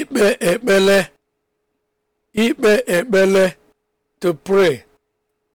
ikpe ekpele ikpe ekpele to pray